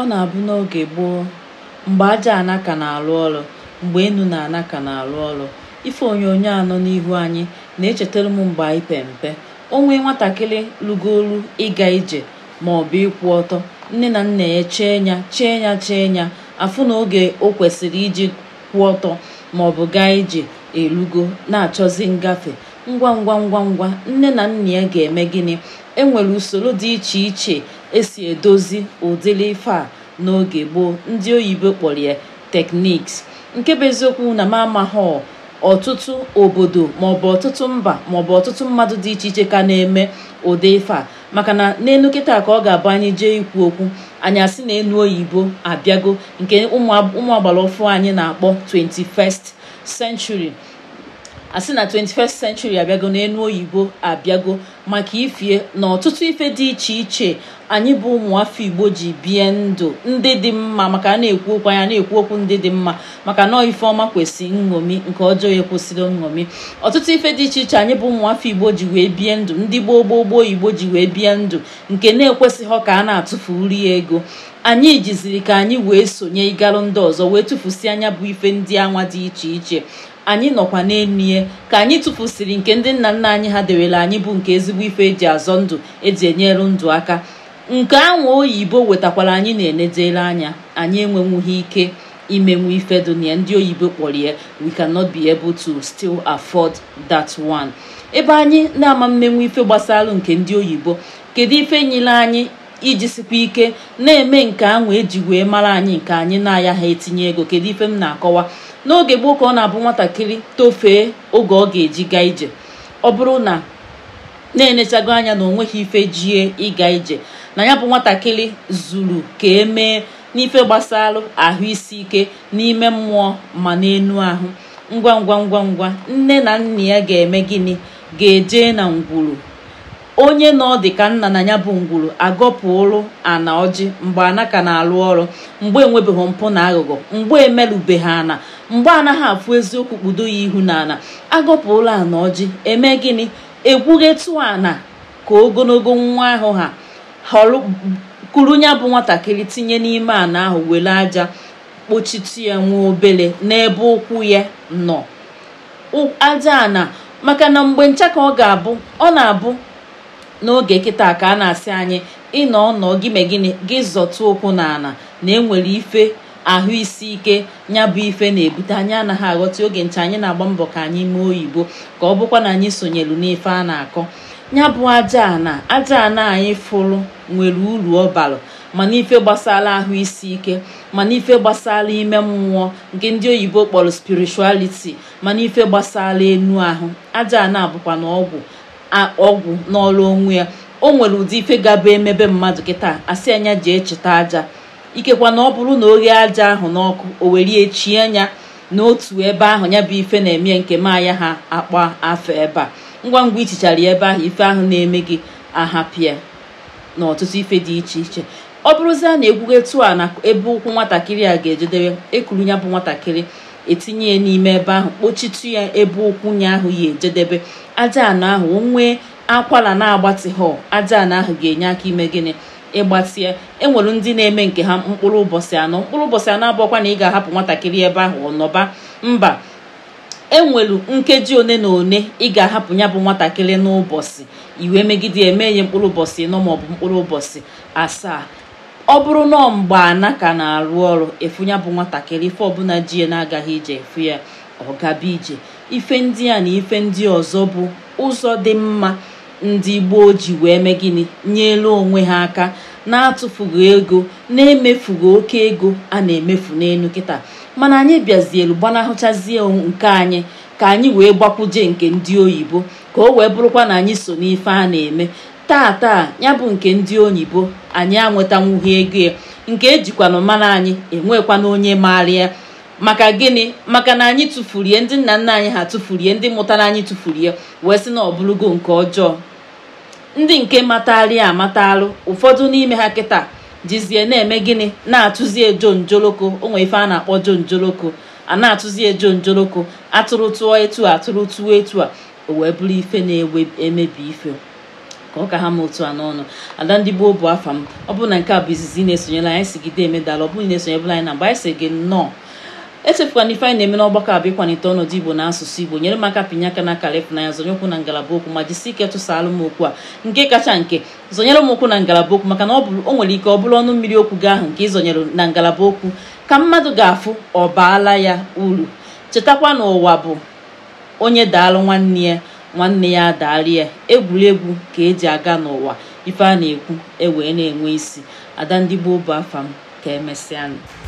Ọ na-abụ n'oge gboo, mgbe aja anaka na alụ ọrụ, mgbe enu na anaka na alụ ọrụ, ife onyonyo anọ n'ihu anyị na-echetara m mgbe anyị pe mpe, o nwee nwatakịrị rugolu ịga ije maọbụ ịkwụ ọtọ, nne na nna ya chee ya chee ya chee ya, afụ na oge o kwesịrị iji kwụ ọtọ maọbụ gaa ije erugo na achọzi ngafe, ngwa ngwa ngwa ngwa nne na nna ya ga-eme gịnị enwere usoro dị iche iche esi edozi ụdịrị ife a n'oge gboo ndị oyibo kpọrọ ya tekniks nke bụ eziokwu na mamahọ ọtụtụ obodo maọbụ ọtụtụ mba maọbụ ọtụtụ mmadụ dị iche iche ka na-eme ụdị ife a maka na n'elu kịta ka ọ ga-abụ anyị jee ikwu okwu anyị asị na elu oyibo abịago nke ụmụ agbara ọfụ anyị na-akpọ 21st century asị na 21st century abịago enu oyibo abịago maka ifie na ọtụtụ ife dị iche iche anyị bụ ụmụafọ igbo ji bie ndụ ndị dị mma maka a na-ekwu okwu anya na-ekwu okwu ndị dị mma maka na ife ọma kwesị nṅomi nke ọjọọ ya kwesịrị nṅomi ọtụtụ ife dị iche iche anyị bụ ụmụafọ igbo ji wee bie ndụ ndị gboo gboo gboo igbo ji wee bie ndụ nke na-ekwesịghị ka a na-atụfu nri ego anyị jiziri ka anyị wee sonye ịgalụ ndị ọzọ wee tụfusi anya bụ ife ndị anwa dị iche iche anyị nọkwa n'elu ka anyị tụfusịrị nke ndị nna nna anyị ha dewere anyị bụ nke ezigbo ife eji azọ ndụ eji enyere ndụ aka nke anwụ oyibo wetakwara anyị na enedela anya anyị enwenwughị ike imenwu ife dunia ndị oyibo kpọrọ ya we cannot be able to still afford that one ebe anyị na-ama mmenwu ife gbasara nke ndị oyibo kedu ife nyere anyị iji sikwa ike na-eme nke anwụ eji wee mara anyị nke anyị na-aya ha etinye ego kedu ife m na-akọwa n'oge gboo ka ọ na-abụ nwatakịrị tofee oge ọ ga-eji gaa ije ọ bụrụ na na-enechago anya na onweghị ife jie ịga ije na ya bụ nwatakịrị zuru ka emee n'ife gbasara ahụ isi ike n'ime mmụọ ma n'enu ahụ ngwa ngwa ngwa ngwa nne na nna ya ga-eme gịnị ga-eje na ngwuru onye na ọ dị ka nna na ya bụ ngwuru agọpụrụ ana ọjị mgbe anaka na-alụ ọrụ mgbe enwebeghị mpụ na aghụghọ mgbe emerube ha ana mgbe anaghị afụ eziokwu kpudo ya ihu n'ala ụlọ ana ọjị eme gịnị egwughetu ana ka ogologo nwa ahụ ha kuru ya bụ nwatakịrị tinye n'ime ana ahụ were aja kpochitu ya nwa obele n'ebe ụkwụ ya nọ aja ana maka na mgbe ncha ka ọ ga-abụ ọ na-abụ n'oge kịta ka a na-asị anyị ịnọ ọnọ gị gịnị gị ụkwụ n'ala na enwere ife ahụ isi ike ya bụ ife na-ebute anyị anaghị aghọta oge nche anyị na-agba mbọ ka anyị mee oyibo ka ọ bụkwa na anyị sonyelu n'ife a na-akọ ya bụ aja na aja ana anyị fụrụ nwere uru ọbalụ ma mana ife gbasala ahụ isi ike mana ife gbasala ime mmụọ nke ndị oyibo kpọrọ ma mana ife gbasala enu ahụ aja ana bụkwa na ọgwụ ọgwụ n'ọrụ onwe ya o nwere ụdị ife gaba emebe mmadụ kịta asị anya ji echeta aja ikekwa na ọ bụrụ na oghe aja ahụ n'ọkụ o werie chie anya n'otu ebe ahụ ya bụ ife na-eme nke maya ha akpa afọ ebe a ngwa ngwa ichichara ebe ahụ ife ahụ na-eme gị ahapịa na ọtụtụ ife dị iche iche ọ a na egwugetu a na ebe ụkwụ nwatakịrị a ga-ejedebe ekuru ya bụ nwatakịrị etinye ya n'ime ebe ahụ kpochitu ya ebe ụkwụ ya ahụ ya ejedebe aja anọ ahụ o nwee akwara na-agbatị họl aja ana ahụ ga-enye aka ime gịnị ịgbasie enwere ndị na-eme nke ha mkpụrụ ụbọchị anọ mkpụrụ ụbọchị anọ abụọkwa na ị ga-ahapụ nwatakịrị ebe ahụ ọ nọba mba enwelu nkeji one na one ị ga-ahapụ ya bụ nwatakịrị n'ụbọchị iwe megide eme ya mkpụrụ ụbọchị ịnọ maọbụ mkpụrụ ụbọchị asaa ọ bụrụ na ana ka na-arụ ọrụ efu ya bụ nwatakịrị ife ọbụla ji ya na-agaghị ije efu ya ọ gaba ije ife ndị a na ife ndị ọzọ bụ ụzọ dị mma ndị gboo ji wee mee gịnị elu onwe ha aka na-atụfughị ego na-emefughị oke ego a na-emefu n'elu kịta mana anyị bịazielu gbanahụchazie nke anyị ka anyị wee gbakwuje nke ndị oyibo ka o wee bụrụkwa na anyị so n'ife a na-eme taa taa ya bụ nke ndị oyibo anyị anwetanwughị ego ya nke ejikwanụ mana anyị enwekwana onye maara ya maka gịnị maka na anyị tụfurie ndị nna nna anyị ha tụfurie ndị mụtara anyị tụfurie wee sị na ọ bụrụgo nke ọjọọ ndị nke matarị amatalụ ụfọdụ n'ime ha kịta jizie na-eme gịnị na atụzie ejo njoloko onwe ife a na-akpọ jon njoloko a na atụzie ejo njoloko atụrụ tụọ etu a atụrụ tụọ etu a o wee bụrụ ife na-emebi ife ka ọ ka ha ma otu a n'ọnụ ada ndị gboo bụ afa m ọ bụrụ na nke a bụ izizi na-esonyela anyị sigide emedala ọ bụrụ na esonyebụla anyị na mgbe anyị si gị nnọọ echefukwana ife anyị na-eme n'ọgbakọ abụ ịkwanite ọnọdụ igbo na asụsụ igbo nyere m aka pinye aka n'aka lefụnanya zonye ụkwụ na ngalaba okwu ma jisi ike tụsaalụ m okwu a nke kacha nke zonyere m na ngalaba okwu maka na o nwere ike ọ bụrụ ọnụ mmiri okwu gị ahụ nke ịzonyere na ngalaba okwu ka mmadụ ga-afụ ọ baala ya uru chetakwa na ụwa bụ onye daalụ nwanne ya nwanne ya adaali ya egwuregwu ka eji aga n'ụwa ife a na-ekwu ewee na-enwe isi ada ndị gboo bụ afa m ka emesịanụ